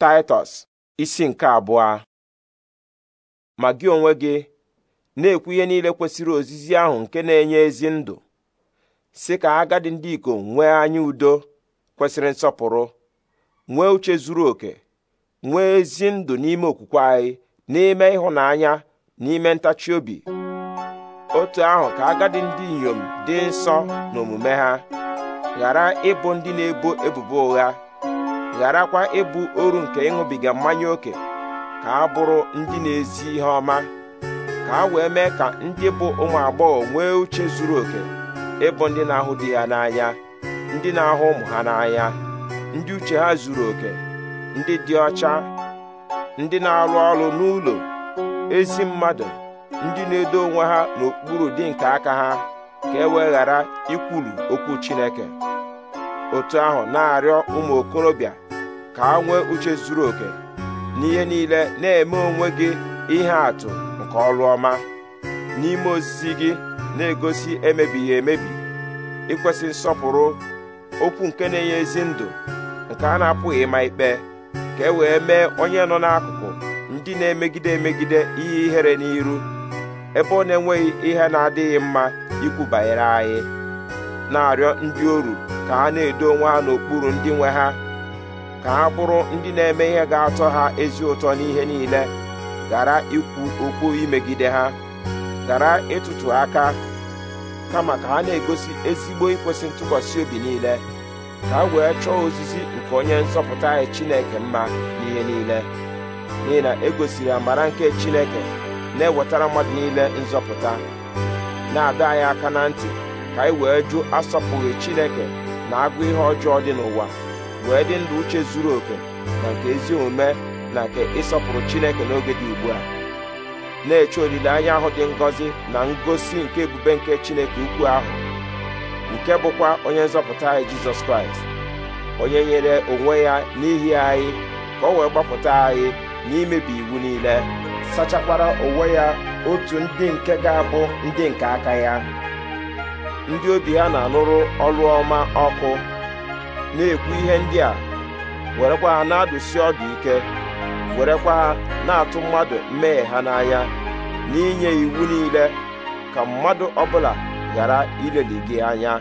taịtọs isi nke abụọ ma gị onwe gị na-ekwu ihe niile kwesịrị ozizi ahụ nke na-enye ezi ndụ si ka agadi ndị ikom nwee anya udo kwesịrị nsọpụrụ nwee uche zuru oke nwee ezi ndụ n'ime okwukwe anyị n'ime ịhụnanya n'ime ntachi obi otu ahụ ka agadi ndị inyom dị nsọ n'omume ha ghara ịbụ ndị na-ebo ebubo ụgha gharakwa ịbụ oru nke ịṅụbiga mmanya ókè ka a bụrụ ndị na-ezi ihe ọma ka a wee mee ka ndị bụ ụmụ agbọghọ nwee uche zuru oke ịbụ ndị na-ahụ di ya n'anya ndị na-ahụ ụmụ ha n'anya ndị uche ha zuru oke ndị dị ọcha ndị na-arụ ọrụ n'ụlọ ezi mmadụ ndị na-edo onwe ha n'okpuru dị nke aka ha ka e wee ghara ikwulu okwu Chineke otu ahụ na-arịọ ụmụ okorobịa ka ha nwee uche zuru oke n'ihe niile na-eme onwe gị ihe atụ nke ọrụ ọma n'ime ozizi gị na-egosi emebighị emebi Ikwesị nsọpụrụ okwu nke na-enye ezi ndụ nke a na-apụghị ịma ikpe ka e wee mee onye nọ n'akụkụ ndị na-emegide emegide ihe ihere n'iru ebe ọ na-enweghị ihe na-adịghị mma ikwu banyere anyị na-arịọ ndị oru ka ha na-edo onwe ha n'okpuru ndị nwe ha ka ha bụrụ ndị na-eme ihe ga-atọ ha ezi ụtọ n'ihe niile gara ikwu okwu imegide ha gara ịtụtụ aka kama ka ha na-egosi ezigbo ikwesị ntụkwasị obi niile ka ha wee chọọ ozizi nke onye nzọpụta anyị Chineke mma n'ihe niile n'ihi na egosiri amara nke Chineke na-ewetara mmadụ niile nzọpụta na-adọ anyị aka na ntị ka anyị wee jụ asọpụghị Chineke na agụ ihe ọjọọ dị n'ụwa wee dị ndụ uche zuru oke na nke ezi omume na nke ịsọpụrụ Chineke n'oge dị ugbu a na-eche olileanya ahụ dị ngọzi na ngosi nke ebube nke Chineke ukwu ahụ nke bụkwa onye nzọpụta anyị Jizọs Kraịst onye nyere onwe ya n'ihi anyị ka o wee gbapụta anyị n'imebi iwu niile sachakwara onwe ya otu ndị nke ga-abụ ndị nke aka ya ndị obi ha na-anụrụ ọlụ ọma ọkụ na-ekwu ihe ndị a werekwa ha na-adụsi ọdụ ike werekwa ha na-atụ mmadụ mmehie ha n'anya n'inye iwu niile ka mmadụ ọbụla ghara ileli gị anya